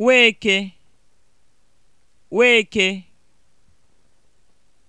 Weke Weke